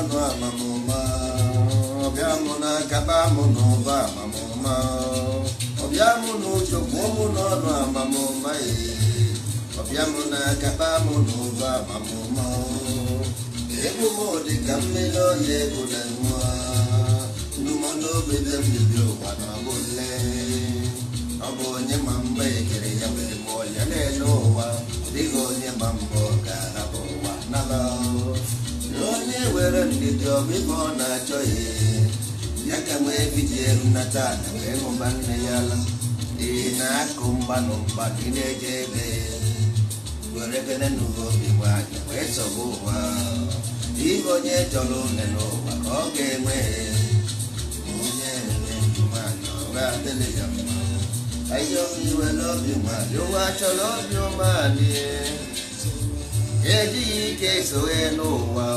n'ọnụ amamụma ọbịa mụ na nkaba mụ na ụba amamụma ọbịa mụ na ụjọgbuo mụ n'ọnụ amamụma ọbịa mụ na nkaba mụ na ụba amamụma egbu m dị ka mmiri ọya egwu na nwa ndụmọdụobe dị mbibi ụwa na ọbụle ọ bụ onye ma mba ekere ya wee mụọ ya na-ele ụwa dịghị onye ma mba ọ ga-ahapụ ụwa nala were ndidi ọgụ ibe ọ na-achọ ihe ya ka wee bidi na wee hụba nne ya ala ị na-akụ mgbanụ mgbanụ ị na-eje ebe werekene n'ụwa obi nwaanyị wee sọba ụwa ndị onye chọrọ une n'ụwa ka ọ ga-enwe onye nwaanyị ọga ya mma n'obi nwaanyị ụwa chọrọ obi ejighị ike n'ụwa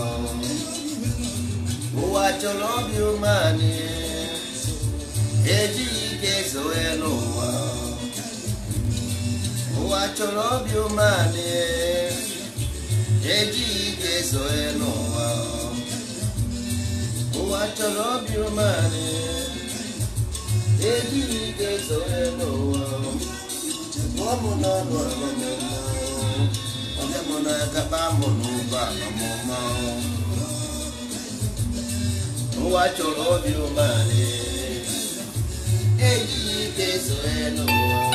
ụwa chọrọ obi umeanị ejighị ike zoe n'ụwa ụwa chọrọ obi ụmanị ejighị ike zoe n'ụwa ụwa chọrọ obi umeanị ejighị ike zoe n'ụwa ọ bụ n'ọnụ ọmụmụ onye mụ na ụwa chọrọ obi umeala ejighị ike zo n'ụwa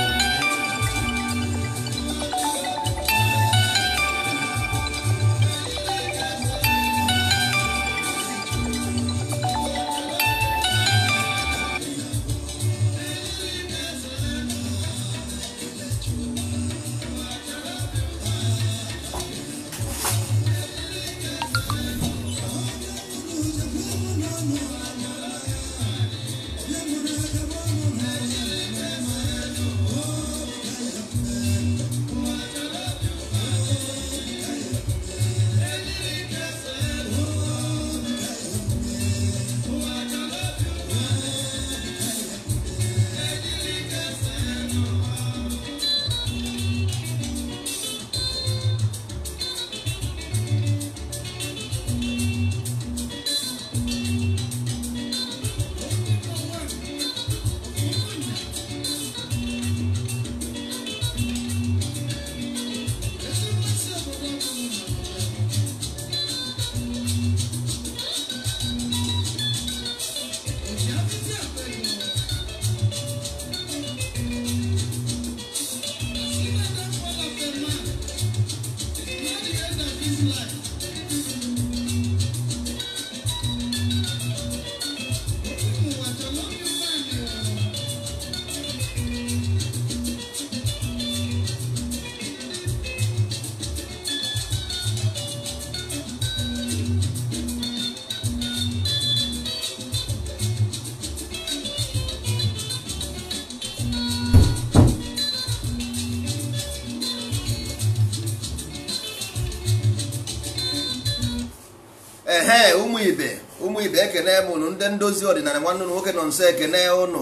ibe ụmụ ibe ekene m ụnụ ndị ndozi ọdịnala nwanne ụnụ nwoke nọ nso ekene ụnụ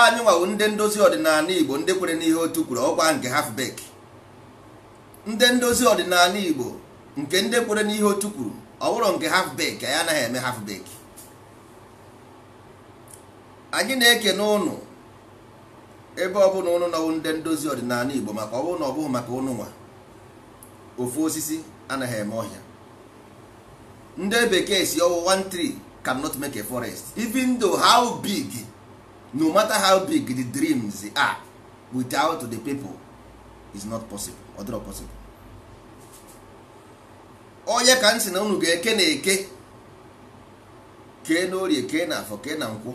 anyị nwawu ndị ndozi ọdịnala igbo ndị kwere n'ihe otu kwuru ọkwa nke halfbek ndị ndozi ọdịnala igbo nke ndị kwere n'ihe otu kwuru ọ bụrụ nke halfbek anyị anaghị eme halfbek anyị na-ekene ụnụ ebe ọ bụla ụnụ nọwụ ndị ndozi ọdịnala igbo maka ọ na maka ụnụ nwa ofu osisi anaghị eme ọhịa ndị bekee si ọwụ ọwụwa tree cannot make a forest even though how big no matter how big the dreams are without the people is not possible other possible onye ka m na unu ga-eke na eke kee na orie kee na afọ kee na nkwụ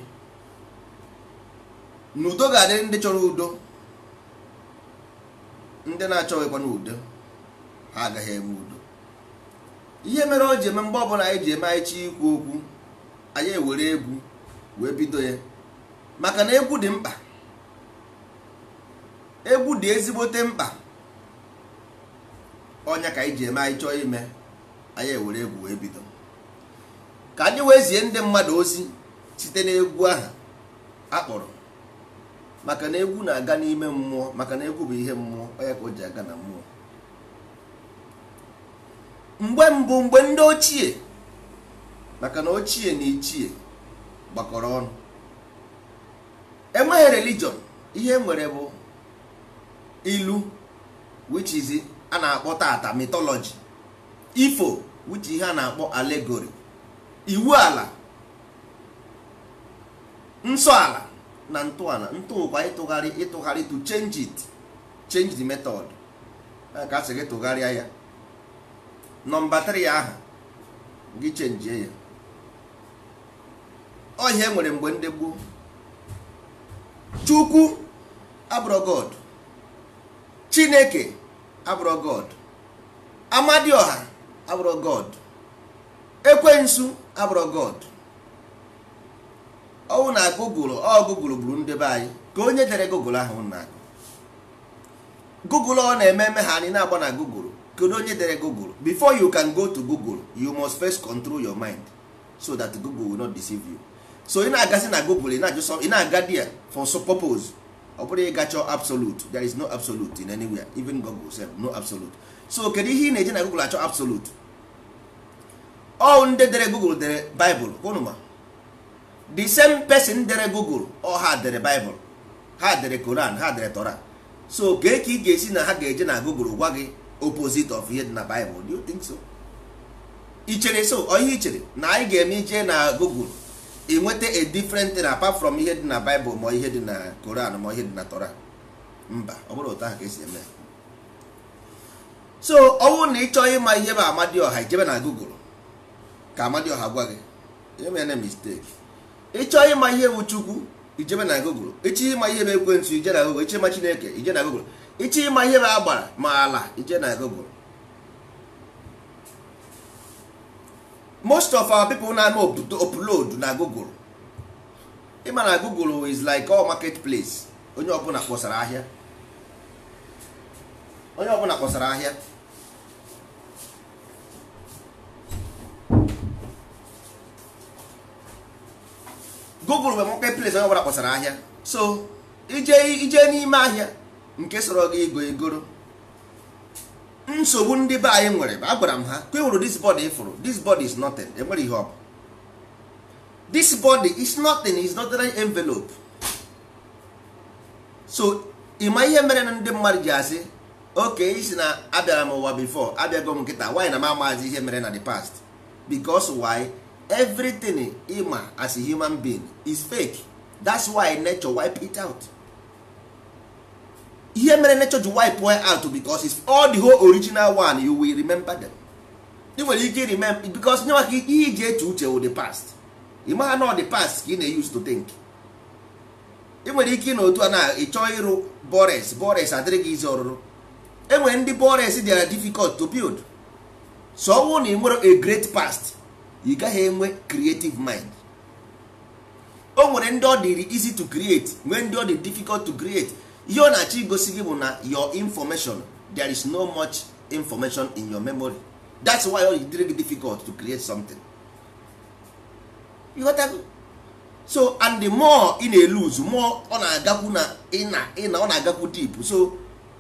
n'udo ga-adị ndị chọrọ udo ndị na-achọghịkwa n'udo ha agaghị enwe udo ihe mere o ji eme mgbe ọbụla anyị ji eme anyị chi ikwu okwu anyị ewere egwu wee bido ya maka na egwu dị mkpa egwu dị ezigbote mkpa ọnya ka anyị ji eme anyị chọọ ime anyị ewere egwu wee bido ka anyị wee zie ndị mmadụ ozi site n'egwu ahụ akpọrọ maka na egwu na-aga n'ime mmụọ maka na egwu bụ ihe mmụọ onye ka o ji aga na mmụọ mgbe mbụ mgbe ndị ochie maka na ochie na ichie gbakọrọ ọnụ enweghị religion ihe e nwere bụ ilu which is a na-akpọ tata mythology ifo which ihe a na-akpọ alegori iwu ala nsọ ala na ntọala ntụụkwa ịtụgharị ịtụgharị to change it change the method ka a sị gị tụgharịa ya nọmba 3 ahụ gị chenjie ya ọhịa enwere mgbe ndị gboo chukwu abụrụ chineke abụrụ amadioha abụrụ god ekwensu abụrụ god ọnwụ na gụgụl ọ ndebe anyị ka onye dere gụgụl ahụ na gụgụl ọ na-eme eme ha anyị na-agba na gụgụl kedu onye dere google before you can go to google you must first control your mind so that google will not deceive you so ị na-agasị na google ị na-aga dia for so purpose ọ bụrụ ịga chọọ absolute there is no absolute in anywhere even google sef no absolute so kedu ihe ị na-eji na google achọ absolute all ndị dere google dere bible kwụnụma the same person dere google ọ ha dere bible ha dere koran ha dere tora so ga ka ị ga-esi na ha ga-eje na google gwa gị opposite of ihe dị na Bible do you think so? ichere chere so ihe ichere na anyị ga-eme ije na Google enweta a different thing apart from ihe dị na Bible ma ihe dị na Koran ma ihe dị na Torah mba ọ bụrụ ụta ahụ ka esi eme so ọ na ịchọ ịma ihe bụ Amadioha ijebe na Google ka Amadioha gwa gị emere mistake ịchọ ịma ihe bụ Chukwu ijebe na Google ịchọ ịma ihe bụ ekwentị ije na Google ịchọ ịma Chineke ije na Google ịchọ ịma ihe a agbara ma ala ije na Google most of our people na-eme upload na Google ịma na Google is like all market place onye ọbụla kpọsara ahịa onye ọbụla kpọsara ahịa Google bụ market place onye ọbụla kpọsara ahịa so ije ije n'ime ahịa nke soro gị ego egoro nsogbu ndị be anyị nwere agwara m ha kwewuru this body ifụrụ this body is nothing enwere ihe ọ bụ this body is nothing is not an envelope so ịma ihe mere na ndị mmadụ ji asị oke isi na abịara m ụwa before abịago m nkịta why na m amaghịzi ihe mere na the past because why everything ịma as a human being is fake that's why nature wipe it out ihe mere nature ji wipe out because it's all the whole original one you will remember them ị nwere ike remember because nye maka ihe iji eche uche wụ the past ị magha na the past ka ị na-use to think ị nwere ike na otu a na ịchọ ịrụ bores bores adịrị gị izi ọrụrụ enwere ndị bores dị difficult to build so ọ na ị nwere a great past ị gaghị enwe creative mind o nwere ndị ọ dịrị easy to create nwee ndị ọ dị difficult to create ihe ọ na-achọ igosi gị bụ na your information there is no much information in your memory that's why ọ dịrị gị difficult to create something you got so and the more ị na-eluzu more ọ na-agakwu na ị na ọ na-agakwu deep so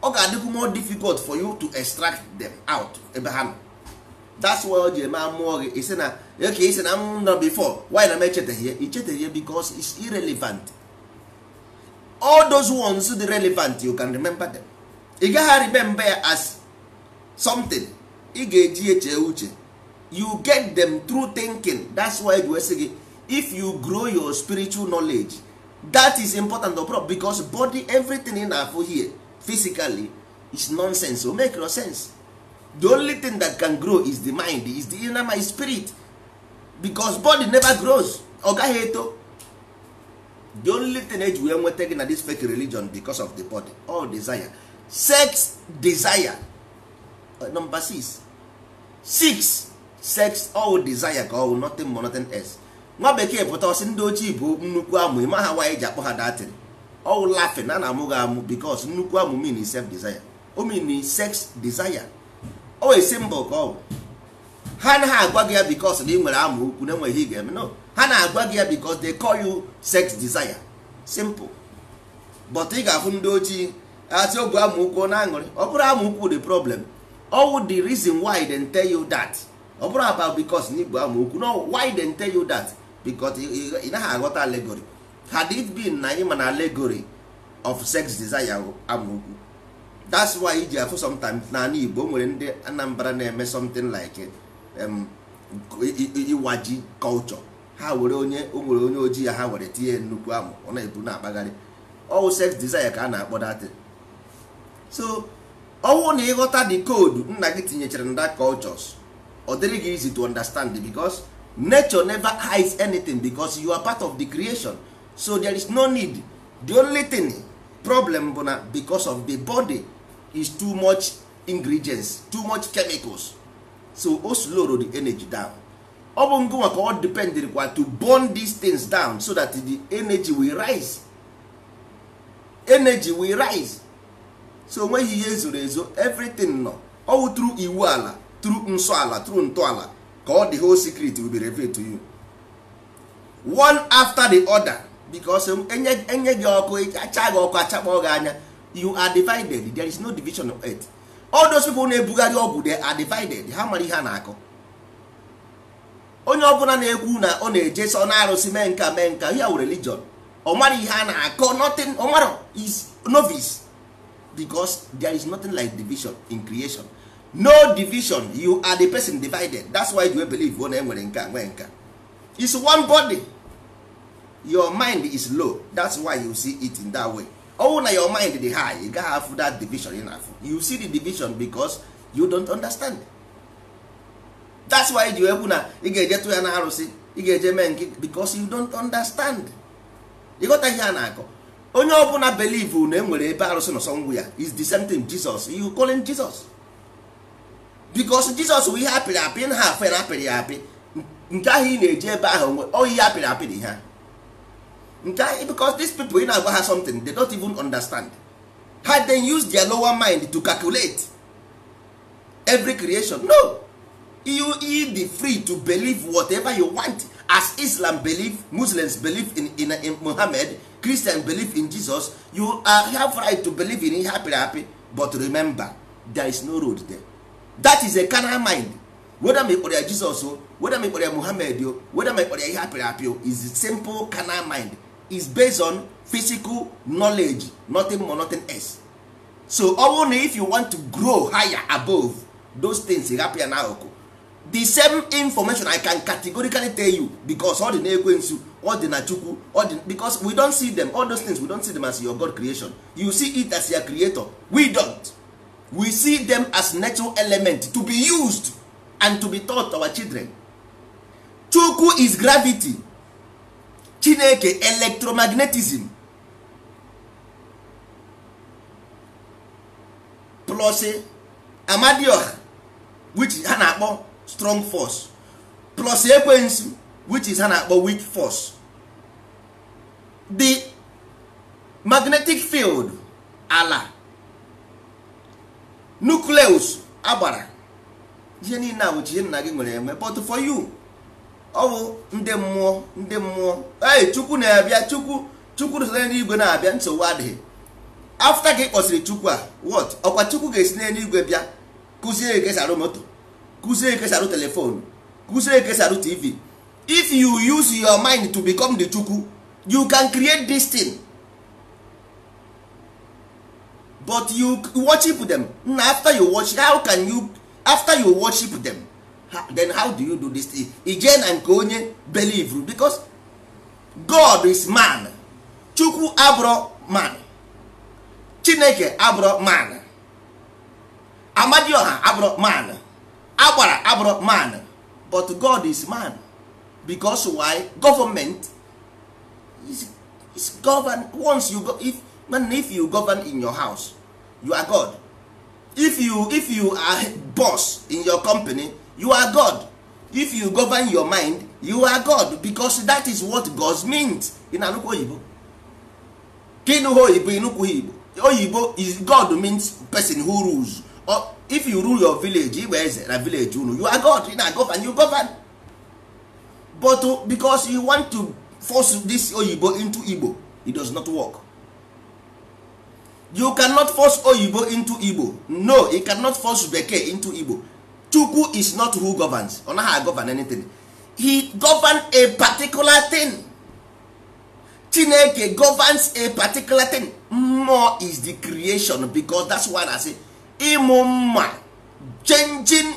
ọ ga-adịkwu more difficult for you to extract them out ebe ha nọ that's why o ji eme amụọ gị isi na oke isi na m mm, nọ before why na m echetaghị ya ichetaghị ya because it's irrelevant all those ones dị relevant you can remember them ị gaghị remember ya as something ị ga-eji eche uche you get them through thinking that's why we if you grow your spiritual knowledge that is important abroad because body everything ị na-afụ here physically is nonsense o make no sense the only thing that can grow is the mind is the inner my spirit because body never grows ọ gaghị eto the only thing eji wee nweta gị na this fake religion because of the body all desire sex desire uh, number six six sex all desire ka ọ nothing more nothing else nwa bekee pụta ọsị ndị ochie bụ nnukwu amụ ịma ha nwaanyị ji akpọ ha datịrị ọwụ lafin a na-amụ gị amụ because nnukwu amụ mean self desire o mean sex desire o esi mbọ ka ọ ha anaghị agwa gị ya because na ị nwere amụ ukwu na enweghị ị ga-eme no ha na-agwa gị ya because dey call you sex desire simple but ị ga-afụ ndị ojii asị ogbu amaokwu na aṅụrị ọ bụrụ amaokwu the problem all the reason why they tell you that ọ bụrụ about because na igbo amaokwu no why they tell you that because ị naghị aghọta allegory had it been na ịma na allegory of sex desire amaokwu that's why iji afụ sometimes n'ala igbo nwere ndị anambra na-eme something like um, iwaji culture ha were onye o nwere onye ojii ya ha were tinye nnukwu amụ ọ na-ebu na-akpagharị ọwụ sex desire ka a na-akpọ so ọwụ na ịghọta the code nna gị tinyechara na cultures ọ dịrị gị easy to understand because nature never hides anything because you are part of the creation so there is no need the only thing problem bụ na because of the body is too much ingredients too much chemicals so o slowed the energy down ọ bụ ngụwa ka ọ kwa to burn these things down so that the energy will rise energy will rise so onweghị ihe zoro ezo everything nọ ọwụ tru iwu ala tru nsọ ala tru ntọala ka ọ dị whole secret will be revealed to you one after the other because enye gị ọkụ acha gị ọkụ achakpọ gị anya you are divided there is no division of earth all those people na-ebugharị ọgwụ they are divided ha mara ihe a na-akọ onye ọbụla na-ekwu na ọ na-eje ọ na-arụsị mee nka mee nka ya were religion ọ mara ihe a na-akọ nothing ọ mara is novice because there is nothing like division in creation no division you are the person divided that's why you believe ọ na-enwere nka nwee nka is one body your mind is low that's why you see it in that way Ọwụ na your mind dị high ị gaghị afụ that division ị na-afụ you see the division because you don't understand it. that's why ji ekwu na ị ga-eje tụ ya na arụsị ị ga-eje mee nke because you don't understand ịghọta ihe a na-akọ onye ọbụla believe na enwere ebe arụsị nọsọ ngwụ ya is the same thing Jesus you calling Jesus because Jesus bụ ihe apịrị apị na ha afe na apịrị ya apị nke ahụ ị na eje ebe ahụ nwe oyi ihe apịrị apị dị ha nke ahụ because this people ị na-agwa ha something they don't even understand ha then use their lower mind to calculate every creation no you you dey free to believe whatever you want as islam believe muslims believe in, in, in muhammad christian believe in jesus you are, have right to believe in ihe happy happy but remember there is no road there that is a carnal mind whether me ịkpọrọ ya jesus o whether me ịkpọrọ ya muhammad o whether me ịkpọrọ ya ihe happy happy o is simple carnal mind is based on physical knowledge nothing more nothing else so only if you want to grow higher above those things happy na akụkụ the same information i can categorically tell you because ọ dị na ekwensu ọ dị na chukwu ọ dị because we don't see them all those things we don't see them as your god creation you see it as your creator we don't we see them as natural element to be used and to be taught our children chukwu is gravity chineke electromagnetism plus amadioha which ha na-akpọ strong force plus ekwensu which is ha na-akpọ weak force the magnetic field ala nucleus agbara ihe niile a bụchi ihe nna gị nwere eme but for you ọ bụ ndị mmụọ ndị mmụọ ee chukwu na-abịa chukwu chukwu so igwe na-abịa nsogbu adịghị afta gị kpọsiri kpọsịrị chukwu a what ọkwa chukwu ga-esi n'eluigwe bịa kụzie gị esi arụ moto kuzie ekesarụ telefon kuzie ekesarụ tv if you use your mind to become the chukwu you can create this thing but you worship them na after you watch how can you after you worship them then how do you do this thing ije na nke onye believe because god is man chukwu abro man chineke abro man amadioha abro man agbara abụrụ man but god is man because why government is, is govern once you go, if, man, if you govern in your house you are god if you if you are boss in your company you are god if you govern your mind you are god because that is what god means in oyibo Kinu oyibo Inukwu igbo oyibo is god means person who rules or, if you rule your village Igbe eze na village unu you are god na govern you govern but uh, because you want to force this oyibo into igbo it does not work you cannot force oyibo into igbo no you cannot force bekee into igbo chukwu is not who governs ọ naghị govern anything he govern a particular thing chineke governs a particular thing more is the creation because that's why i say ịmụ mma changing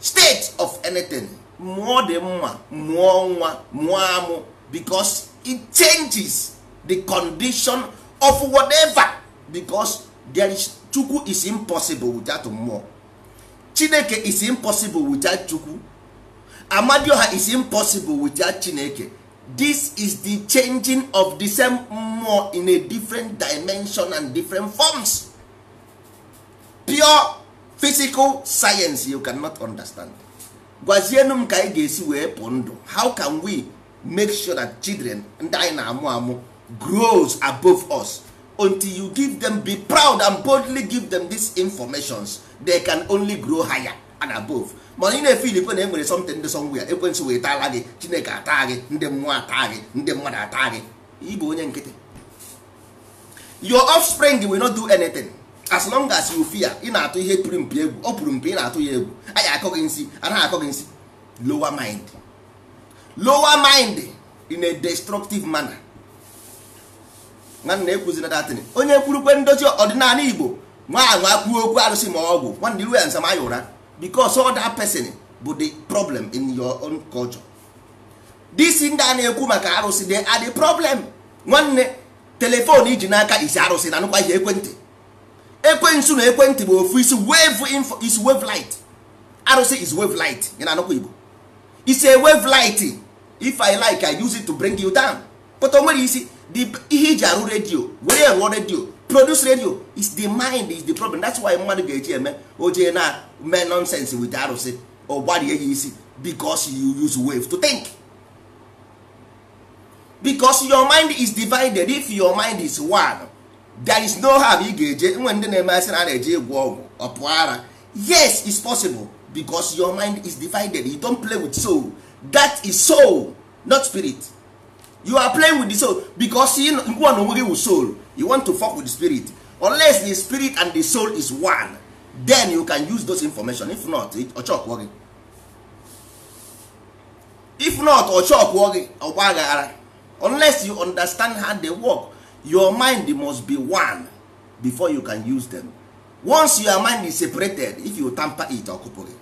state of anything mụọ dị mma mụọ nwa mụọ amụ because it changes the condition of whatever because there is chukwu is impossible without mmụọ chineke is impossible without chukwu amadioha is impossible without chineke this is the changing of the same mmụọ in a different dimension and different forms. pure physical science you cannot understand gwazienụ m ka anyị ga-esi wee pụ ndụ how can we make sure that children ndị anyị na-amụ amụ grows above us until you give them be proud and boldly give them dis informations they can only grow higher and above mana ị na-efili kwe na e nwere something ndị somewhere ekwensụ wee taala gị chineke ataa gị ndị mmụọ ataa gị ndị mmadụ ataa gị ịbụ onye nkịtị your offspring will not do anything. as long as you fear ị na-atụ ihe pụrụ mpi egwu ọ pụrụ mpi ị na-atụ ya egwu anyị akọ gị nsị anaghị akọ gị nsị lower mind lower mind in a destructive manner nwanne ekwuzina datin onye kwurukwe ndozi ọdịnala igbo nwa anwa kwuo okwu arụsị ma ọgwụ nwanne iru ya nsama ya ụra because other person bụ the problem in your own culture this ndị a na-ekwu maka arụsị they are the problem nwanne telefon iji n'aka isi arụsị na nụkwa ihe ekwentị ekwensu na ekwentị bụ ofu isi wave is wave light arụsị is wave light ya na anụkwa igbo is a wave light if i like i use it to bring you down but o nwere isi ihe iji arụ redio were rụọ redio produce radio is the mind is the problem that's why mmadụ ga-eji eme ojee na mee nonsense with arụsị ọ gbarie ya isi because you use wave to think because your mind is divided if your mind is one there is no harm ị ga-eje nwe ndị na-eme asị na a na-eje ịgwọ ọgwụ ọpụ ara yes it's possible because your mind is divided you don play with soul that is soul not spirit you are playing with the soul because you na onwe gị with soul you want to fuck with the spirit unless the spirit and the soul is one then you can use those information if not ọchọkwụọ gị if not ọchọkwụọ gị ọgba aghara unless you understand how they work your mind must be one before you can use them once your mind is separated if you tamper it ọkụpụ gị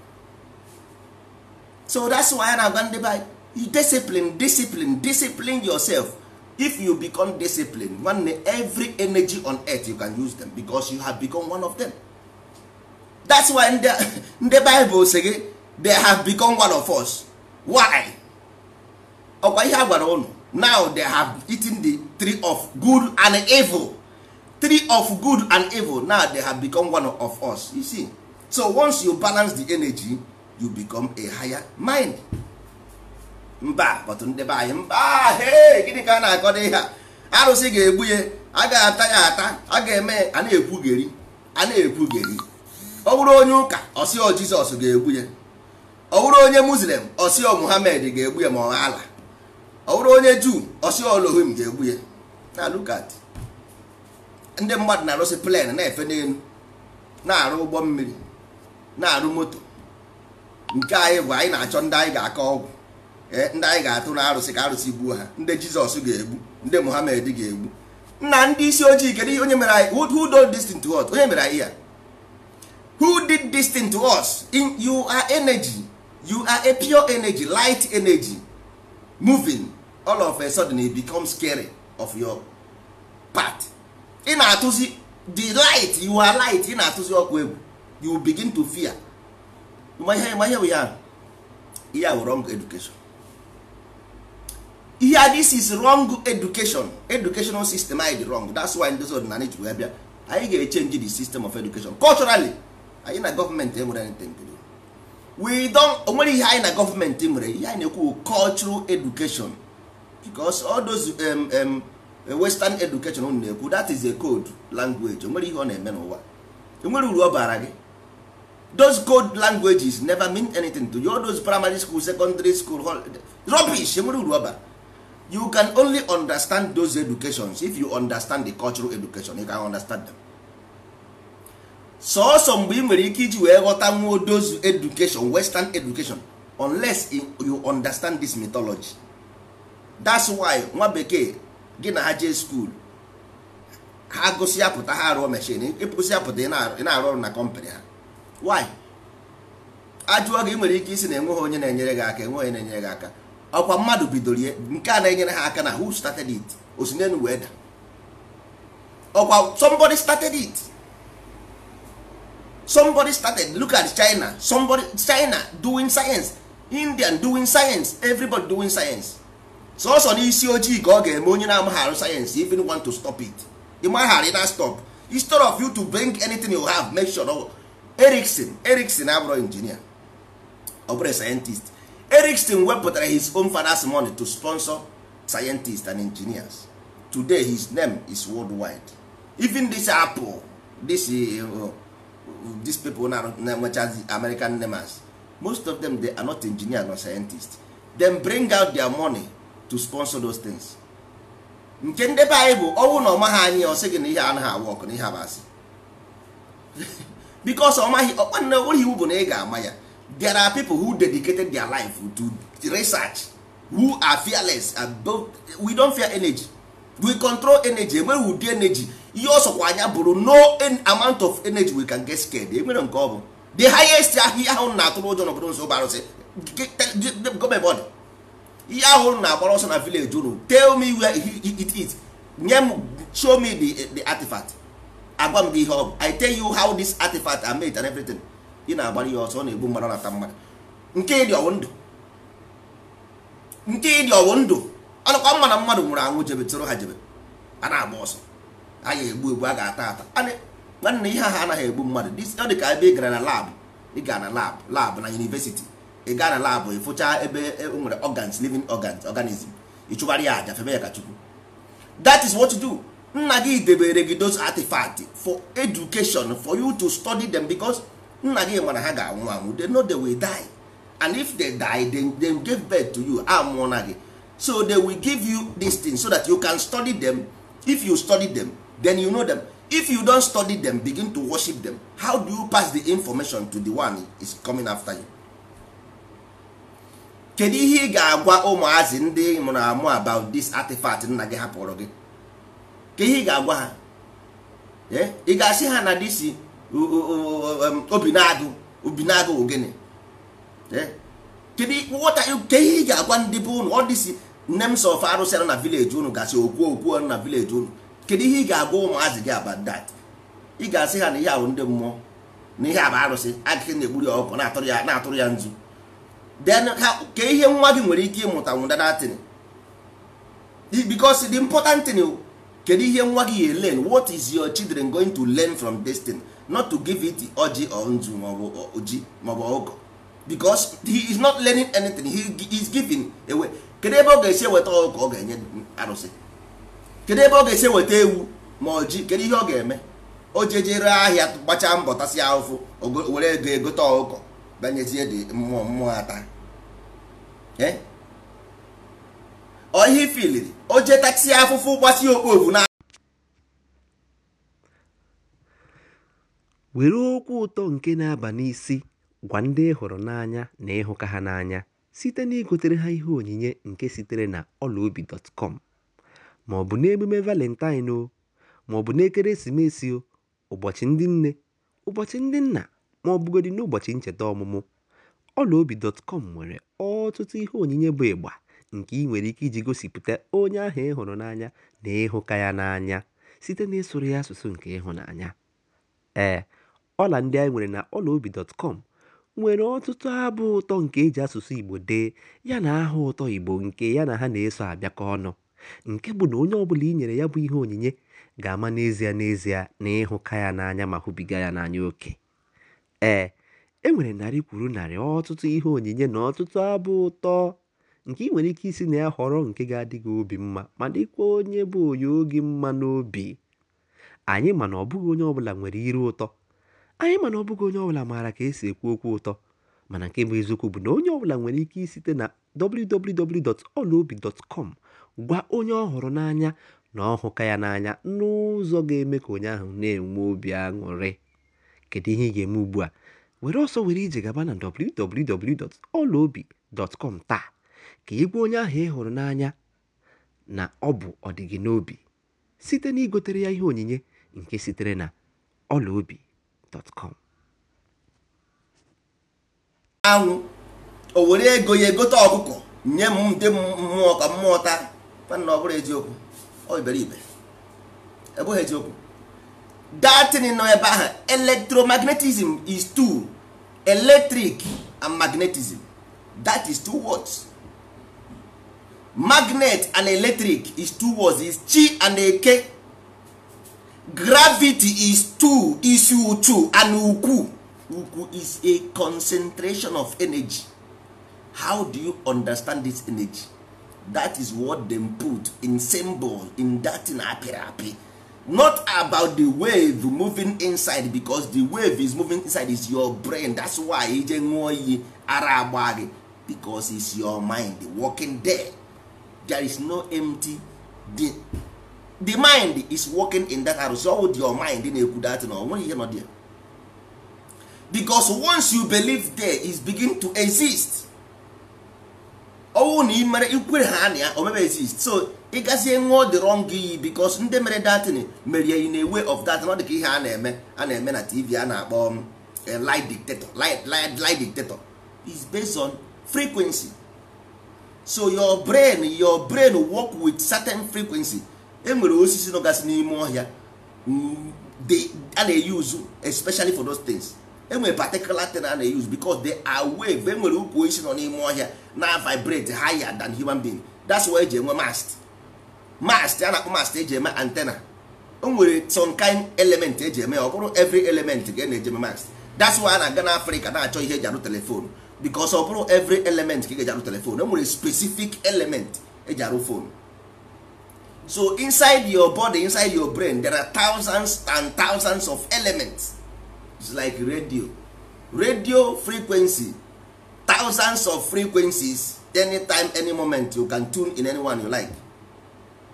so that's why a na-agwa ndị by you discipline discipline discipline yourself if you become discipline nwanne every energy on earth you can use them because you have become one of them that's why ndị bible si gị they have become one of us why ọkwa ihe a gwara now they have eaten the three of good and evil three of good and evil now they have become one of us you see so once you balance the energy you become a higher mind mba but ndeba anyị mba he gịnị ka a na akọ ihe a arụsị ga-egbu ya a ga-ata ya ata a ga-eme a na-ekwugeri a na-ekwugeri ọ bụrụ onye ụka ọsịọ jizọs ga-egbu ya ọ bụrụ onye muslim ọsịọ muhammad ga-egbu ya ma ọ ala ọ bụrụ onye juu ọsịọ olohim ga-egbu ya na lukat ndị mmadụ na-arụsị plen na-efe n'elu na-arụ ụgbọ mmiri na-arụ moto nke anyị bụ anyị na-achọ ndị anyị ga-akọ ọgwụ eh, ndị anyị ga-atụ na arụsị ka arụsị gbuo ha ndị jizọs ga-egbu ndị muhammed ga-egbu nna ndị isi ojii kedu onye mere anyị who did this to us onye mere anyị ya who did this to us in you are energy you are a pure energy light energy moving all of a sudden it becomes scary of your part ị na-atụzi the light you are light ị na-atụzi ọkụ egwu you begin to fear ihe bụ ya ihe a wrong education ihe this is wrong education educational system anyị dị wrong that's why ndị ọdịnala ji wee bịa anyị ga-echenji the system of education culturally anyị na gọọmenti enwere anything to we don onwere ihe anyị na gọọmenti nwere ihe anyị na-ekwu cultural education because all those um, um, western education unu na-ekwu that is a code language onwere ihe ọ na-eme n'ụwa enwere uru ọ bara gị those code languages never mean anything to you all those primary school secondary school rubbish enwere uru ọba. you can only understand those educations if you understand the cultural education you can understand them sọọsọ mgbe ị nwere ike iji wee ghọta nwuo those education western education unless you understand this mythology that's why nwa bekee gị na ha jee skuul ha gụsị ya pụta ha arụọ mechin ịpụsị ya pụta ị na-arụ ọrụ na kọmpanị ha why ajụọ gị nwere ike isi na enweghị onye na-enyere gị aka enweghị onye na-enyere gị aka ọkwa mmadụ bidoro ya nke a na-enyere ha aka na who started it osinenu wee da ọkwa somebody started it somebody started look at China somebody China doing science Indian doing science everybody doing science sọsọ n'isi ojii ka ọ ga-eme onye na-amaghị arụ sayensị if you want to stop it ịmaghara ị na stop instead of you to bring anything you have make sure ọ Erickson Erickson abụrụ injinia ọ bụrụ scientist Erickson wepụtara his own father's money to sponsor scientists and engineers today his name is worldwide even this apple this uh, these people na-enwechazi American names most of them they are not engineers nor scientists them bring out their money to sponsor those things nke ndị be anyị bụ ọnwụ na ọma ha anyị ọ sị gị na ihe anaghị awa ọkụ na ihe abasị because ọmaghị ọkpanne ụlọ iwu bụ na ị ga-ama ya there are people who dedicated their life to research who are fearless and we don't fear energy we control energy enweghị ụdị energy ihe ọsọkwa anya bụrụ no amount of energy we can get scared enwere nke ọ bụ the highest ahịa ahụ na-atụrụ ụjọ n'obodo nso bụ arụsị gọọmenti ihe ahụ na agbara ọsọ na village unu tell me where it is nye m show me the, the artifact agwa m gị ihe ọ bụ i tell you how this artifact are made and everything ị na-agbara ihe ọsọ ọ na-egbu mmadụ na-ata mmadụ nke ịdị ọwụ ndụ nke ịdị ọwụ ndụ ọnụkwa mma na mmadụ nwụrụ anwụ jebe tụrụ ha jebe a na-agba ọsọ a ga-egbu egbu a ga-ata ata nwanne ihe ahụ anaghị egbu mmadụ ọ dị ka ebe ị gara na lab ị gara na labụ labụ na yunivesiti ị gaa na labụ ịfụcha ebe e nwere organs living organs organism ịchụgharị ya aja febe ya ka chukwu that is what you do nna gị debere gị those for education for you to study them because nna gị mana ha ga-anwụ anwụ they know they will die and if they die they, they give birth to you amụọ na gị so they will give you this thing so that you can study them if you study them then you know them if you don study them begin to worship them how do you pass the information to the one is coming after you kedu ihe ị ga-agwa ụmụazị ndị mụrụ amụ about this artifact nna gị hapụrụ gị ka ihe ị ga-agwa ha eh? ị ga-asị ha na disi obinagụ obinagụ ogene kedu ihe ị ga-agwa ndị bụ unu ọ dịsi names of arụsị na village unu gasị okwu okwu na village unu kedu ihe ị ga-agwa ụmụazị gị about that ị ga-asị ha na ihe ahụ ndị mmụọ na ihe abụ arụsị agịghị na-egburi ya ọkụ na-atụrụ ya nzu then ka ihe nwa gị nwere ike ịmụta nwụda datin because the important thing kedu ihe nwa gị ya learn what is your children going to learn from this thing not to give it ọjị or nzu maọbụ oji maọbụ ọgọ because he is not learning anything he is giving away kedu ebe ọ ga-esi weta ọgọ ọ ga-enye arụsị kedu ebe ọ ga-esi weta ewu ma ọjị kedu ihe ọ ga-eme o jejere ahịa gbachaa mbọ tasịa ahụfụ were ego egote ọgọ banyezie dị mmụọ mmụọ ata Eh? ọ ihe ifiliri o jetatie afụfụ gbasi okpovu na were okwu ụtọ nke na-aba n'isi gwa ndị hụrụ n'anya na ịhụka ha n'anya site na igotere ha ihe onyinye nke sitere na ọlaobi.com ma ọ bụ n'emume valentine o ma ọ bụ n'ekeresimesi o ụbọchị ndị nne ụbọchị ndị nna ma ọ bụgodị n'ụbọchị ncheta ọmụmụ Ọlaobi.com nwere ọtụtụ ihe onyinye bụ ịgba nke ị nwere ike iji gosipụta onye ahụ ị hụrụ n'anya na ịhụka ya n'anya site n'ịsụrụ ya asụsụ nke ịhụnanya. Ee, ọla ndị anyị nwere na Ọlaobi.com nwere ọtụtụ abụ ụtọ nke e ji asụsụ Igbo dee yana aha ụtọ Igbo nke ya na ha na-eso abịakọ ọnụ, nke bụ na onye bụla i nyere ya bụ ihe onyinye ga-ama n'ezie n'ezie na ịhụka ya n'anya ma hụbiga ya n'anya oke. Ee. E nwere narị kwuru narị ọtụtụ ihe onyinye na ọtụtụ abụ ụtọ nke ị nwere ike isi na ya họrọ nke ga-adị gị obi mma ma dịkwa onye bụ onye oge mma n'obi anyị mana ọ bụghị onye ọbụla nwere iru ụtọ anyị mana ọ bụghị onye ọbụla maara ka esi ekwu okwu ụtọ mana nke bụ eziokwu bụ na onye ọbụla nwere ike isite na kọm gwa onye ọ hụrụ n'anya na ọhụka ya n'anya n'ụzọ ga-eme ka onye ahụ na-enwe obi aṅụrị kedu ihe ị ga-eme ugbu a were ọsọ were ije gaba na www.olaobi.com taa ka egwu onye ahụ ị e hụrụ n'anya na ọ bụ ọdịgị n'obi site na igotere ya ihe onyinye nke sitere na olaobi.com anwụ o were ego ya egote ọkụkọ nye m ndị mmụọ ka mmụọ taa ọ eziokwu ọ eziokwu datin nọ ebe ahụ electromagnetism is two electric and magnetism that is two words magnet and electric is two words is chi and eke gravity is two is uchu and ukwu ukwu is a concentration of energy how do you understand this energy that is what dem put in symbol in datin apịrị apị not about the wave moving inside because the wave is moving inside is your brain that's why ije ṅụọ iyi ara agba gị because it's your mind working there there is no empty the, the mind is working in that house so with your mind na-ekwu that na onwe ihe nọ there because once you believe there is begin to exist ọnwụ na imere ikwere ha na ya o mebe exist so ị gazie nwụọ wrong iyi because ndị mere datin merie in a way of that ọ dị ihe a na-eme a na-eme na tv a na-akpọ um, eh, light dictator is based on frequency so your brain your brain work with certain frequency enwere osisi nọgasị n'ime ọhịa mm, a na-eyuzu especially for those things enwere particular thing a na-use because they are wave enwere ukwu osisi nọ n'ime ọhịa na vibrate higher than human being that's why eji enwe mast mast a na-akpọ mast eji eme antenna o nwere some kind element eji eme ya ọ bụrụ every element ga e na-eji eme mast that's why a na-aga n'afrịka na-achọ ihe eji arụ telefonu because ọ bụrụ every element ka ị e ga-eji arụ telefonu e nwere specific element eji arụ fonu so inside your body inside your brain there are thousands and thousands of elements It's like radio radio frequency thousands of frequencies anytime any moment you can tune in anyone you like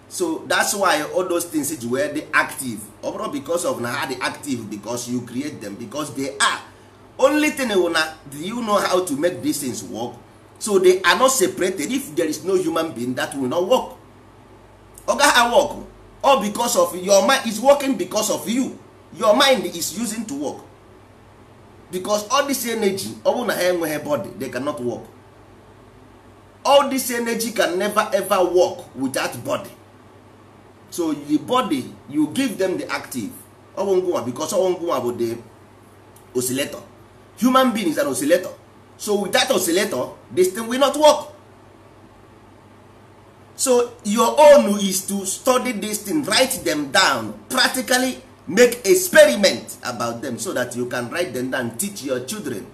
so that's why all those things ji dey active ọ bụrụ because of na ha dey active because you create them because they are only thing na do you know how to make these things work so they are not separated if there is no human being that will not work oga ha work all because of your mind is working because of you your mind is using to work because all this energy ọ bụrụ na ha enweghị body they cannot work all this energy can never ever work without body so the body you give them the active ọgwụ ngwụnwa because ọgwụ ngwụnwa bụ the oscillator human being is an oscillator so without oscillator this thing will not work so your own is to study this thing write them down practically make experiment about them so that you can write them down teach your children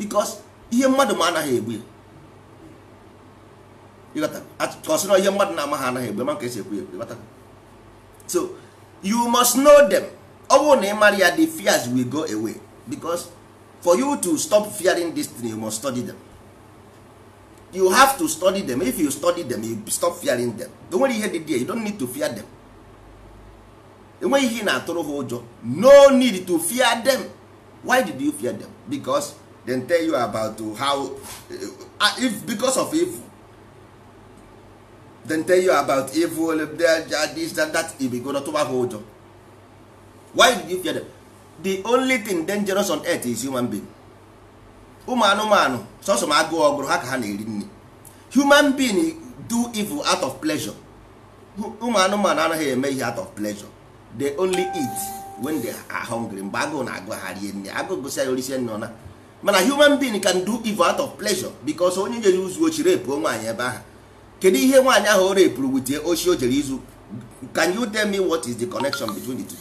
because ihe mmadụ ma anaghị egbu kọsịrọ ihe mmadụ na-amaghị anaghị egbu maka esi ekwu ya so you must know them ọ bụrụ na ị mara ya the fears will go away because for you to stop fearing this thing you must study them you have to study them if you study them you stop fearing them o nwere ihe dị there you don't need to fear them enweghị ihe na-atụrụ ha ụjọ no need to fear them why did you fear them because they tell you about how uh, uh, if because of evil they tell you about evil this that that go not ha ụjọ why did you fear them the only thing dangerous on earth is human being ụmụ anụmanụ sọsọ ma agụụ ọgụrụ ha ka ha na-eri nri human being do evil out of pleasure ụmụ anụmanụ anaghị eme ihe out of pleasure they only eat when they are hungry mgbe agụụ na-agụ ha rie nne agụụ gụsịa ya orisie nne ọna mana human being can do evil out of pleasure because onye jere izu ochi repuo nwaanyị ebe ahụ kedu ihe nwaanyị ahụ o repụrụ wutie ochi o jere izu can you tell me what is the connection between the two?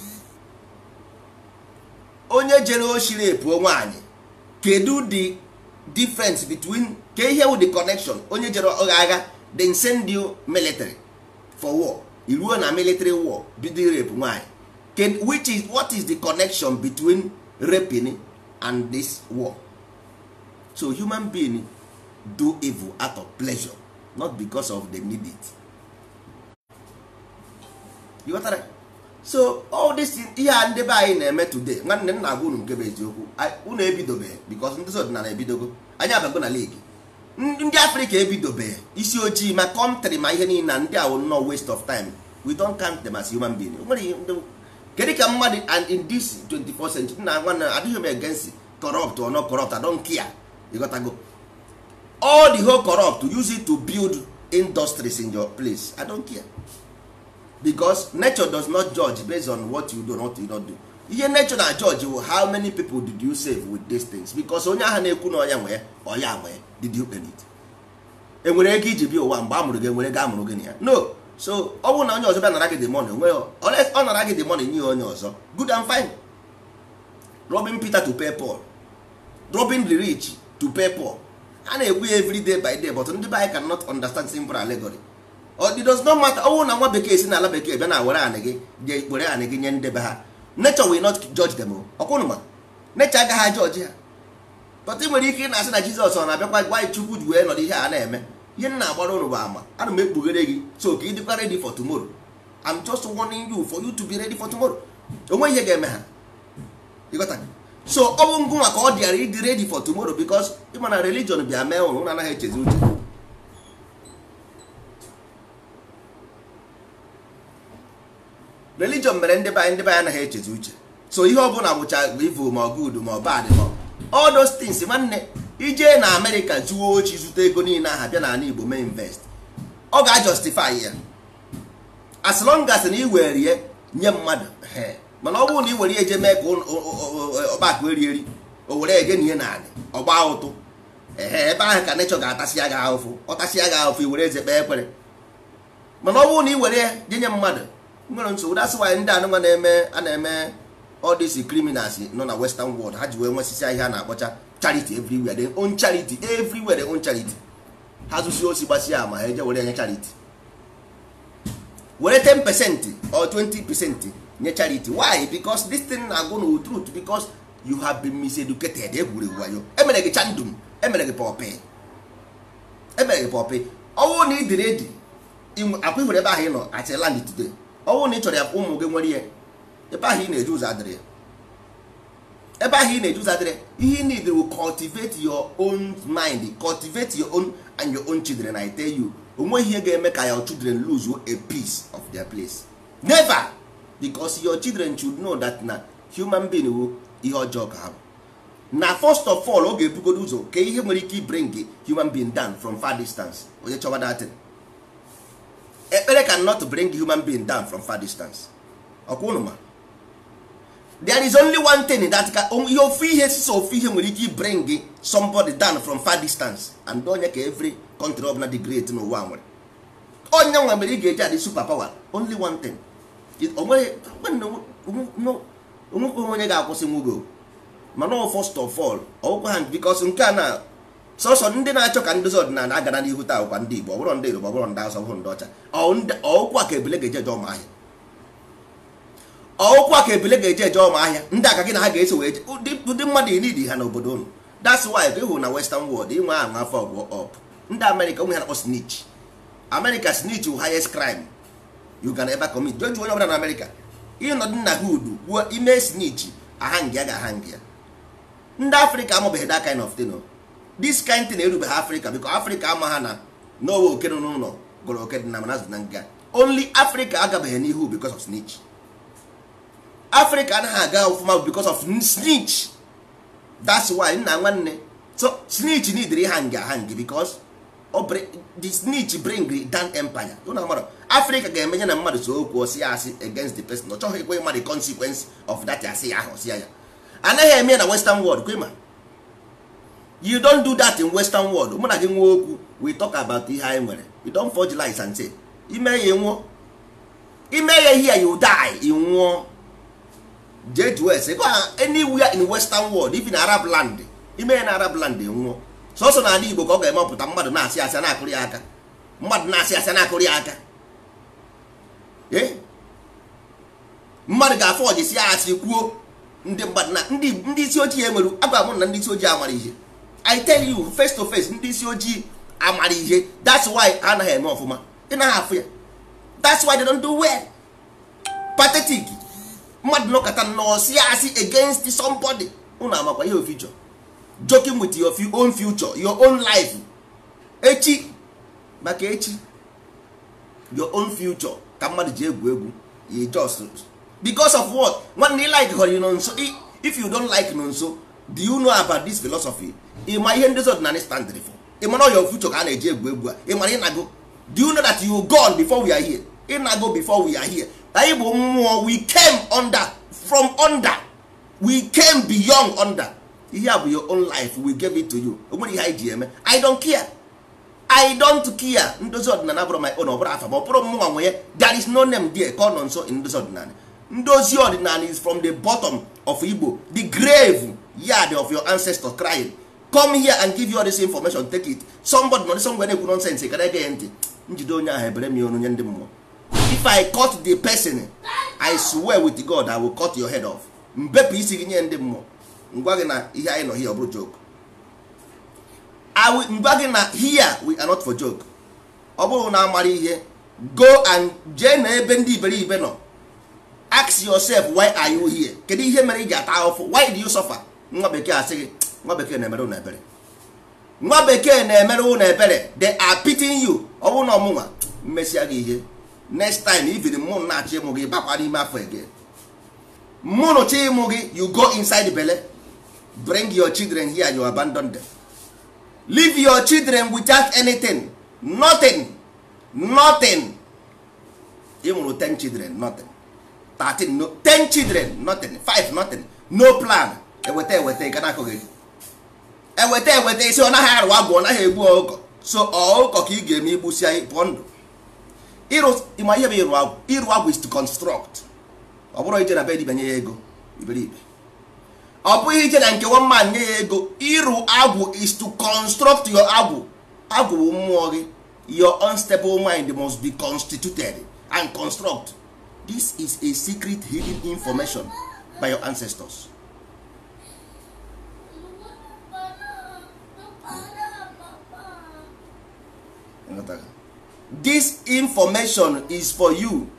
onye jere ochi repuo nwaanyị kedu the difference between ke ihe wụ the connection onye jere agha then send you military for war iruo na military war bido rape nwanyị can which is what is the connection between raping and this war so human being do evil out of pleasure not because of them need it you got that? so all this ihe a ndị be anyị na-eme today nwanne m na-agwa unu nke bụ eziokwu unu ebidobeghị because ndị ọdịnala ebidogo anyị abago na league ndị afrịka ebidobe isi ojii ma kọntrị ma ihe niile na ndị awụ nọ waste of time we don count them as human being kedu ka mmadụ and in this 24th century na adịghị m against corrupt or not corrupt I don't care go. all the whole corrupt use it to build industries in your place I don't care because nature does not judge based on what you do not you not do ihe nature na judge how many people did you save with these things because onye ahụ na-ekwu na ọya nwe ọya did you earn it enwere ego iji bịa ụwa mgbe a mụrụ gị enwere ego a mụrụ gị na ya no so ọ bụrụ na onye ọzọ bịa nara gị dị money onwe ọ nara gị dị money nye onye ọzọ good and fine Robin Peter to pay Paul Robin the rich to pay Paul a na-ekwu ya every day by day but ndị be anyị cannot understand simple allegory it does not matter ọnwụ na nwa bekee si na ala bekee bịa na were anị gị je ikpere anị gị nye ndebe ha nature will not judge them ọkwụnụ ma nature agaghị ajọji ha pọtụ nwere ike ị na-asị na jizọs ọ na-abịakwa gwa anyị chukwu ji wee nọdụ ihe a na-eme ihe m na-agbara ụrụ bụ ama ana m ekpughere gị so ka ị dịkwa ready for tomorrow I'm just warning you for you to be ready for onwe ihe ga-eme ha ịghọta so ọ bụ ngụ maka ọ dịara ịdị ready for tomorrow because ịma na religion bịa mee ụrụ ụlọ anaghị echezi uche religion mere ndị be anyị ndị anyị anaghị echezi uche so ihe ọ bụla bụcha bụ ivu ma ọ good ma ọ bad ma ọ all those things nwanne ijee na amerịka zuo ochi zụta ego niile aha bịa n'ala igbo mee invest ọ ga-ajustify ya as long as na iwere ya nye mmadụ mana ọ bụrụ na i were ya eje mee ka ọgbakọ eri eri o were eje na ihe n'ala ọgba ụtụ ee ebe ahụ ka nechọ ga-atasị ya gị ahụfụ ọtasị ya gị ahụfụ i were eze kpee ekpere mana ọ bụrụ na i were ya nye mmadụ nwere nsogbu that's why ndị anụnwa na-eme a na-eme all these criminals nọ na western world ha ji wee nwesịsị ahịa na-akpọcha charity everywhere they own charity everywhere they own charity ha zụsi osi gbasịa ama ha eje were nye charity were 10 percent or 20 percent nye charity why Becos this thing na-agụ na truth because you have been miseducated egwuregwu wayo emere gị chandum emere gị pọpị emere gị pọpị ọnwụ na ị dịrị edi akwa ihụrụ ebe ahụ ị nọ at land today na ị chọrọ ya ụmụ gị nwere ihe ebe ahụ ị na-eje ụzọ adịrị ebe ahụ ị na-eje ụzọ ihe ị need will cultivate your own mind cultivate your own and your own children I tell you onweghị ihe ga-eme ka your children lose a piece of their place never because your children should know that na human being wu ihe ọjọọ ka ha bụ na first of all ọ ga-ebugodo ụzọ ka ihe nwere ike bring human being down from far distance onye chọwa datin ekpere ka not bring human being down from far distance ọkwa ụnụ there is only one thing that ka ihe ofu ihe sisa ofu ihe nwere ike bring somebody down from far distance and onye ka every country ọbụla dị great n'ụwa nwere onye oh, nwe mere ị ga-eji adị super power only one thing onwekwe onye ga-akwụsị nwugo mana first of all ọgwụkwa oh, ha because um, nke a uh, na sọsọ ndị na-achọ ka ndozi ọdịnala agara n'ihu taa ụkwa ndị Igbo ọbụrụ ndị Yoruba ọbụrụ ndị Hausa ọbụrụ ndị ọcha ọkwa ka ebule ga-eje jọọ ma ahịa ọụkwa ka ebele ga-eje eje ọma ahịa ndị aka gị na ha ga-eso wee ndị mmadụ inidi ha n'obodo unu that's why gị hụrụ na western world inwe ahụ afọ ọgwụ ọp ndị amerịka onwe ha na snitch amerịka snitch wụ highest crime you can ever commit jụọ onye ọbụla na amerịka ịnọdụ nna ha udu ime snich ahang ga-ahang ndị afrịka amabeghị that kind of thing this kind thing erubeghị afrịka biko afrịka ama ha na n'owe okenụ n'ụlọ gụrụ okedị na manazụ na nga only afrịka agabeghị n'ihu because of snitch africa anaghị aga ọfụma because of snitch that's why nna nwanne so need re hang hang because the snitch bring down empire africa ga-emenye na mmadụ so okwu osi ya asị against the person ọ chọghị ekwe mmadụ the consequence of that asị ya ahụ ya anaghị eme na western world kwema you don't do that in western world mụ na gị nwa okwu we talk about ihe anyị nwere you don't forge lies and say ime ya nwụọ ime ya ihe ya you die ị nwụọ jee jụọ ese gwa ha anywhere in western world even arab land ime ya na arab land nwụọ sọsọ n'ala igbo ka ọ ga-emepụta mmadụ na-asị asị na-akụrụ aka mmadụ na-asị asị na-akụrụ ya aka eh? mmadụ ga-afọ ọjisi ya asị kwuo ndị mmadụ na ndị isi ojii enwere agwa mụ na ndị isi ojii amara ihe i tell you face to face ndị isi ojii amara ihe that's why ha anaghị eme ọfụma ị naghị afụ ya that's why they don't do well pathetic mmadụ nọkọta nọsi asị against somebody unu amakwa ihe ofi chọrọ joking with your own future your own life echi maka echi your own future ka mmadụ ji egwu egwu you just because of what nwanne like họrọ nọ nso if you don't like nọ nso do you know about this philosophy ị ma ihe ndị ọdịnala standịrị for ị mara your future ka a na-eji egwu egwu a ị ị na go do you know that you gone before we are here go before we are here anyị mmụọ we came under from under we came beyond under ihe a bụ your own life we give it to you o nwere ihe anyị ji eme i don't care i don't care ndozi ọdịnala bụrụ my own ọ bụrụ afa ma ọ bụrụ mmụọ nwe ya there is no name there ka ọ nọ nso ndozi ọdịnala ndozi ọdịnala is from the bottom of Igbo the grave yard of your ancestor crying come here and give you all this information take it somebody nọ somewhere na-ekwu nonsense gara ege ya ntị njide onye ahụ ebere m ya ndị mmụọ if i cut the person i swear with god i will cut your head off mbepụ isi gị nye ndị mmụọ ngwa gị na ihe anyị nọ here ọ bụrụ joke ngwa gị na here we are not for joke ọ bụrụ na amara ihe go and jee na ebe ndị iberibe nọ ask yourself why are you here kedu ihe mere ị ji ata ahụfụ why do you suffer nwa bekee asị gị nwa bekee na-emere ụnụ ebere nwa bekee na-emere ụnụ ebere they are pitying you ọ bụrụ na ọmụnwa mmesịa gị ihe next time even mụ na-achọ ịmụ gị bakwa n'ime afọ again mụnụ chọ ịmụ gị you go inside bele belle bring your children here you abandon them leave your children without anything nothing nothing ịmụrụ mụrụ 10 children nothing 13 no 10 children nothing 5 nothing no plan eweta eweta ị gana akụghị gị eweta eweta isi ọ naghị arụwa agwụ ọ naghị egbu ọkụkọ so ụkọ ka ị ga-eme igbusi anyị pụọ ndụ ịma ihe bụ ịrụ agwụ is to construct ọ bụrụ ije na be dibanye ya ego iberibe ọ bụghị ije na nke one man nye ya ego ịrụ agwụ is to construct your agwụ agwụ bụ mmụọ gị your unstable mind must be constituted and construct this is a secret hidden information by your ancestors. this information is for you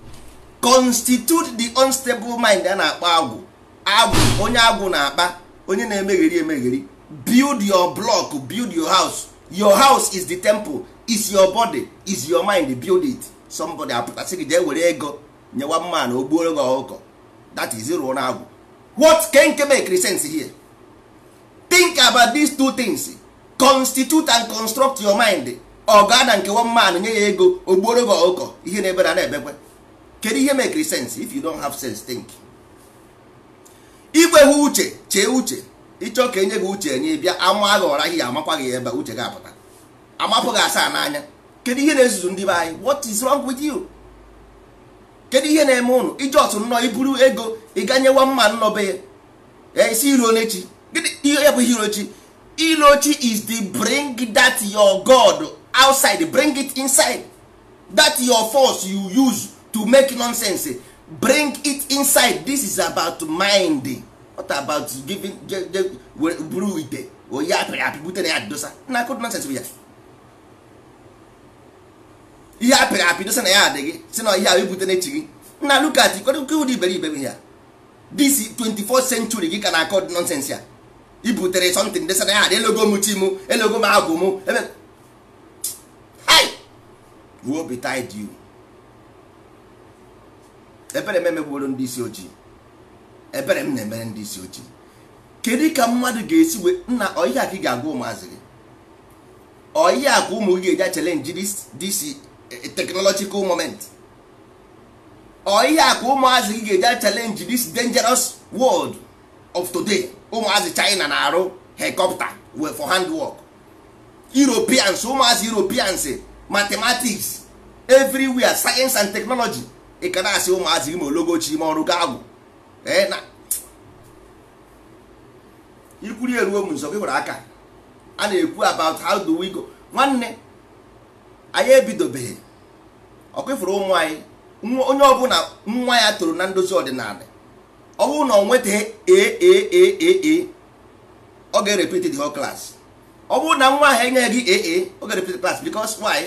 constitute the unstable mind a na akpa agwụ agwụ onye agwụ na-akpa onye na-emegheri emegheri build your block build your house your house is the temple is your body is your mind build it somebody apụtasị gị jee were ego nyewa mma na ogbuoro gị ọkụkọ that is rụọ na agwụ what can make sense here think about these two things constitute and construct your mind ọ gaa na nke one nye ya ego ogbuoro gị ọkụkọ ihe na-ebe na na-ebekwe kedu ihe mekiri sens if you don't have sense think igweghị uche chee uche ịchọ ka enye gị uche enye bịa ama gị ọra ihe amakwa gị ebe uche gị apụta amapụ gị asaa n'anya kedu ihe na-ezuzu ndị be anyị what is wrong with you kedu ihe na-eme ụnụ iji ọtụ nnọọ iburu ego ịganyewa mma nnọbe ya esi eh, iro n'echi gịnị ihe ya bụ ihe irochi ilochi is the bring that your god outside bring it inside that your force you use to make nonsense bring it inside this is about mind what about giving buru ite onye apịrị apị bute na ya dosa na akụd nonsense bụ ya ihe apịrị apị dosa na ya adị gị si na ihe ahụ ebute na echi gị na lukat ikwedokeụdị iberibe bụ ya this 24th century gị ka na akọd nonsense ya ibutere something dosa na ya adị elogo m chi m elogo m agwụ m you will be tied you ebere ndị isi ojii ebere m na-emere ndị isi ojii kedu ka mmadụ ga-esi wee nna ọyị ka ị ga-agwa ụmụazị gị ọyị a ka ụmụ gị ga-eji achele nji disi eh, technological moment ọyị a ka ụmụazị gị ga-eji achele nji this dangerous world of today ụmụazị China na-arụ wee for handwork europeans ụmụazị europeans mathematics everywhere science and technology ị ka na-asị ụmụazị ime ologochi ime ọrụ gaagwụ ikwuri eruo m nso gị nwere aka a na-ekwu about how do we go nwanne anyị ebidobeghị ọkụfụrụ ụmụ anyị onye ọbụla nwa ya toro na ndozi ọdịnala ọ bụrụ na e, e, e, ọ nwetaghị aaa ọ ga erepeti the whole class ọ bụrụ na nwa ahụ enyeghị gị aa oge ga-repeat class because why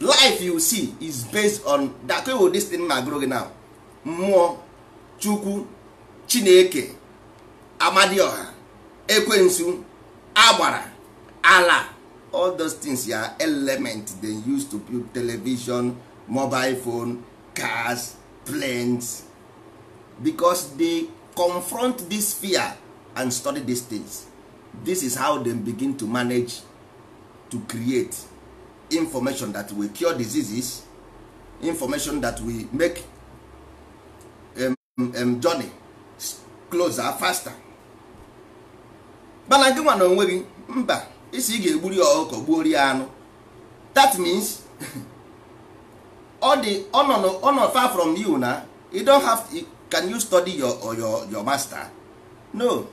life you see is based on that kind of thing na now mmụọ chukwu chineke amadioha ekwensu agbara ala all those things ya element they use to build television mobile phone cars planes because they confront this fear and study these things this is how them begin to manage to create information that will cure diseases information that will make um, um, journey closer faster mana gị nwa na onwe gị mba isi ị ga-egburi ya ọkụkọ gbuo rie anụ that means ọ dị ọ far from you na you don't have to, can you study your, your, your master no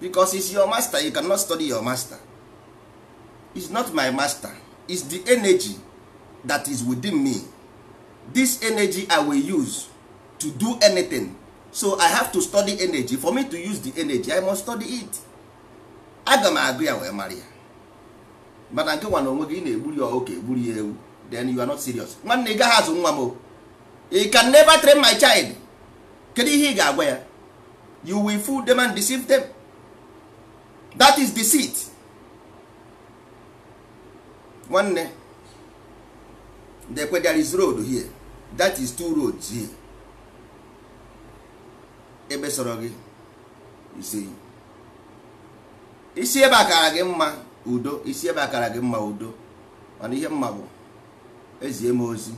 because it's your master you cannot study your master It's not my master It's the energy that is within me this energy i will use to do anything so i have to study energy for me to use the energy i must study it aga m agụ ya wee mara ya mana nke nwa na onwe gị na-egburi ya oke egburi ya ewu then you are not serious nwanne ị gaghị azụ nwa m you can never train my child kedu ihe ị ga-agwa ya you will fool them and deceive them. that is deceit nwanne dekwe there is road here that is two roads here ebe sọrọ gị isi isi ebe akara gị mma udo isi ebe akara gị mma udo mana ihe mma bụ ezie m ozi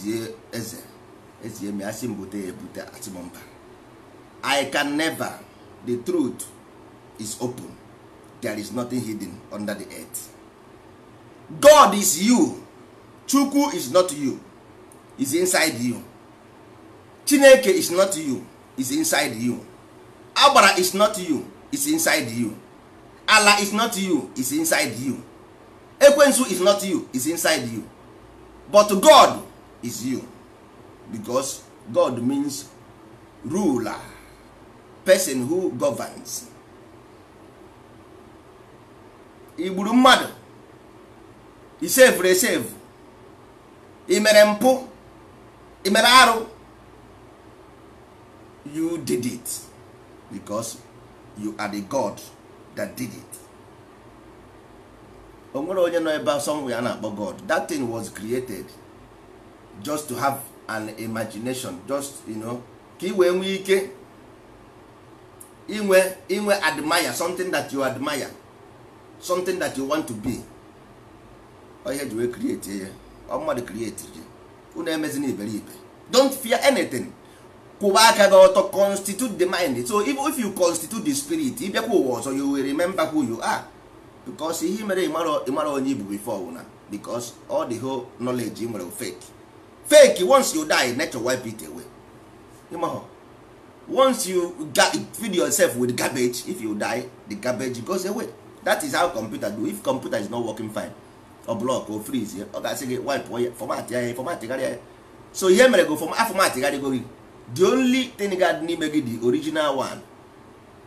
zie eze ezie m asị mbute bute ebute asị m mba i can never the truth is open there is nothing hidden under the earth god is you chukwu is not you is inside you chineke is not you is inside you agbara is not you is inside you ala is not you is inside you ekwensu is not you is inside you but god is you because god means ruler person who governs igburu mmadụ isevuru esevu imere mpụ imere arụ you did it because you are the god that did it o nwere onye nọ ebe somewhere a na-akpọ god that thing was created just to have an imagination just you know ka i wee nwee ike inwe inwe admire something that you admire something that you want to be ihe ji wee create ya ọ mmadụ create gị unu emezina iberibe don't fear anything kwụba aka gị ọtọ constitute the mind so if you constitute the spirit ịbịakwa ụwa ọzọ you will remember who you are because ihe mere ịmara onye ibu before wụna because all the whole knowledge ị nwere fake fake once you die nature wipe it away ịmahọ once you feed yourself with garbage if you die the garbage goes away that is how computer do if computer is not working fine ọ block o freeze ọ ga-asị gị wipe ya fọmatị ya fọmatịgharịa ya so ihe mere go afọmatịgharịgo gị the only thing gad n'ime gị the original one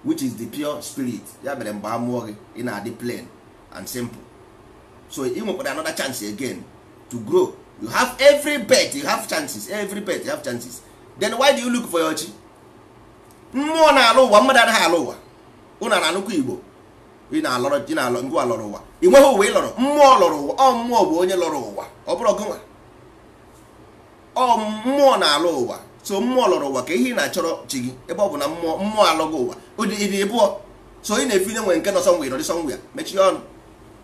which is the pure spirit ya mere mgbe a gị ị na-adị plain and simple so ị nwekwara another chance again to grow you have every bet you have chances every bet you have chances then why do you look for your chi mmụọ na-alụ ụwa mmadụ anaghị alụ ụwa ụnụ na nnukwu igbo ị na-alọrọ ị na-alọ ngwa lọrọ ụwa ị nweghị ụwa ị lọrọ mmụọ lọrọ ụwa ọ mmụọ bụ onye lọrọ ụwa ọ bụrụ gụnwa nwa mmụọ na alọ ụwa so mmụọ lọrọ ụwa ka ihe ị na-achọrọ chi gị ebe ọ bụ na mmụọ mmụọ alụghị ụwa ụdị ịbụọ so ị na-efinye nwe nke nọ sọnwe ịrọrị sọnwe ya mechie ọnụ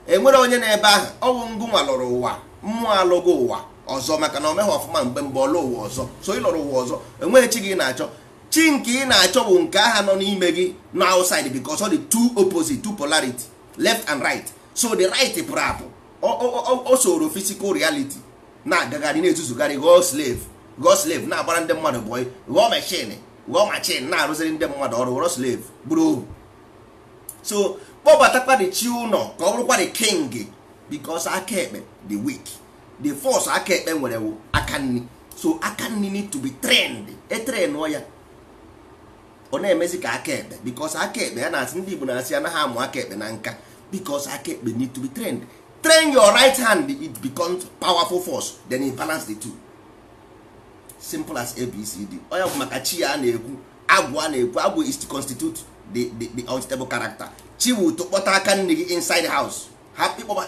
e nwere onye na-ebe ahụ ọnwụ nwa lọrọ ụwa mmụọ alụghị ụwa ọzọ maka na o meghị ọfụma mgbe mgbe ọlụ ụwa ọzọ so ị lọrọ ụwa ọzọ enweghị chi gị na-achọ chi nke ị na-achọ bụ nke aha nọ n'ime gị na outside because ọ dị two opposite two polarity left and right so the right pụrụ apụ o soro physical reality na-agagharị na-ezuzugharị ghọọ slave ghọọ slave na-agbara ndị mmadụ bụ ghọọ mechin ghọọ machin na-arụziri ndị mmadụ ọrụ ghọrọ slave bụrụ ohu so kpọbatakwa the chi ụnọ ka ọ bụrụkwa the king bicos aka ekpe the weak the force aka ekpe nwere aka nri so aka nri need to be e ya ọ na-emezi ka aka ekpe bikos aka ekpe ya na-asị ndị Igbo na-asị anaghị amụ aka ekpe na nka bikos aka ekpe need to be trained train your right hand it becomes powerful force then it balance the two simple as abcd onye bụ maka chi ya na-ekwu agwụ a na-ekwu agwụ is to constitute the, the, the unstable character chi bụ tụkpọta aka nne gị inside house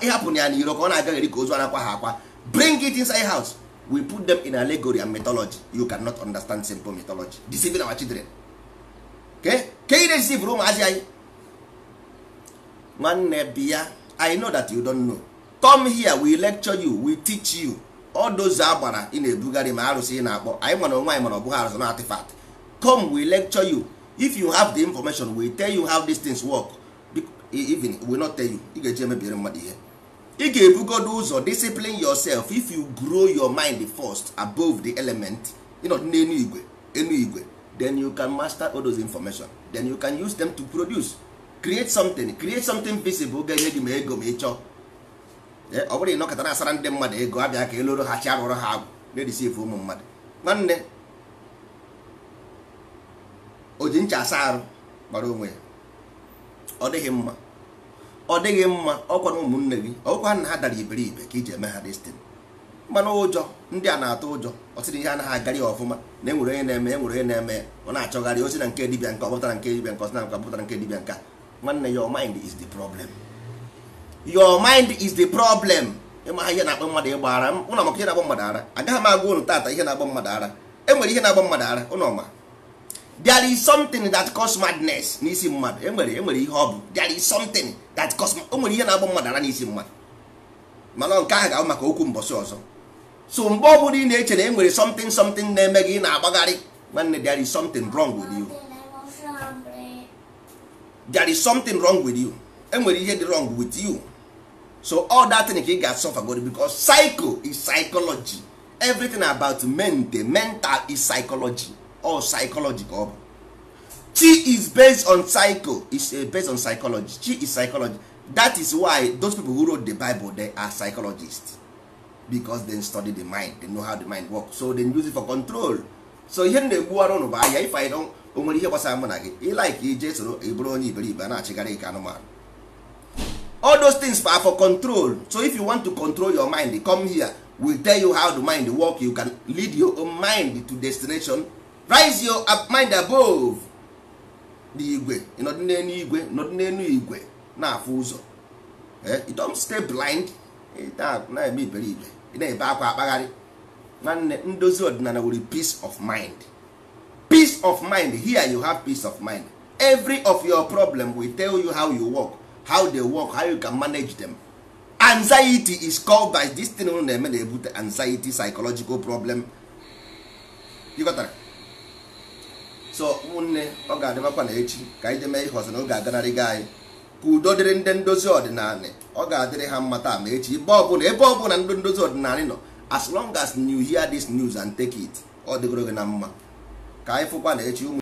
ịhapụ ya na iro ka ọ na-agaghị ka ozu anakwa ha akwa bring it inside house we put them in allegory and mythology you cannot understand simple mythology deceiving our children ka ị resivr ụmụazị anyị nwanne bia, i know that you don't know come here we lecture you we teach you all those agbara ị na-ebugharị ma arụsị ị na-akpọ anyị mana onwe anyị mana ọ arụsị na artifact come we lecture you if you have the information we tell you how these things work e- even we not tell you ị ga-eji mmadụ ihe ị ga-ebugodo ụzọ discipline yourself if you grow your mind first above the element ịnọdụ n'enu igwe enu igwe then you can master all those information then you can use them to produce create something create something visible ga-enye gị ma ego ma ịchọ. chọọ ọ bụrụ ịnọkọta na asara ndị mmadụ ego abịa ka eloro ha chi arụrụ ha agwụ na-edisive ụmụ mmadụ nwanne o ji ncha asa arụ gbara onwe ya ọ dịghị mma ọ dịghị mma ọkwa na ụmụnne gị ọkwa na ha dara iberibe ka iji eme ha destin mmanụ ụjọ ndị a na-atụ ụjọ ọtịrị ihe anaghị agara ya ọfụma na enwere onye na-eme enwere onye na-eme ọ na-achọgharị osi na nke dibịa nka ọpụtara nke dibịa nka ọsina nka ọpụtara nke dibịa nka nwanne your mind is the problem your mind is the problem ịma ihe na-akpọ mmadụ ịgba ụlọ maka ihe na-agba mmadụ ara agaghị m agwa ụnụ tata ihe na-agba mmadụ ara enwere ihe na-agba mmadụ ara ụlọ ma there is mmadụ mana nke ahụ ga maka okwu mbọsị ọzọ so mgbe ọ bụla ị na-eche na e nwere something something na-eme gị ị na-agbagharị nwanne there is something wrong with you there is something wrong with you enwere ihe dị wrong with you so all that thing ka ị ga-asọfa god because psycho is psychology everything about mente mental is psychology all psychology ka ọ bụ chi is based on psycho is eh, based on psychology chi is psychology that is why those people who wrote the bible they are psychologists because they study the mind they know how the mind work so they use it for control so ihe m na-egbuwara ụnụ bụ anya ife anyị don o nwere ihe gbasara mụ na gị ịlaik ije soro ịbụrụ onye iberibe a na-achịgharị ka anụmanụ all those things are for control so if you want to control your mind come here we tell you how the mind work you can lead your own mind to destination rise your mind above the igwe ịnọdụ igwe nọdụ igwe na-afụ ụzọ you don't stay blind na-eme iberibe ị na-ebe akwa akpagharị nwanne ndozi ọdịnala were peace of mind peace of mind here you have peace of mind every of your problem will tell you how you work how they work how you can manage them anxiety is called by this thing na-eme na-ebute anxiety psychological problem so ụmụnne ọ ga-adịbakwa na echi ka anyị jee mee ihe ọzọ na oge aganarịga anyị ka udo dịrị ndị ndozi ọdịnala ọ ga-adịrị ha mma taa ma echi ebe ọbụla ebe ọbụla ndị ndozi ọdịnala nọ as long as you hear this news and take it ọ dịgoro gị na mma ka anyị fụkwa na echi ụmụ